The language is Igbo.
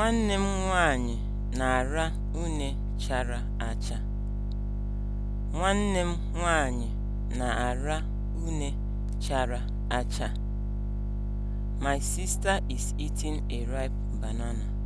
Nwanne m nwanyị na-ara une chara acha. Nwanne m na-ara une chara acha. My sister is eating a ripe banana.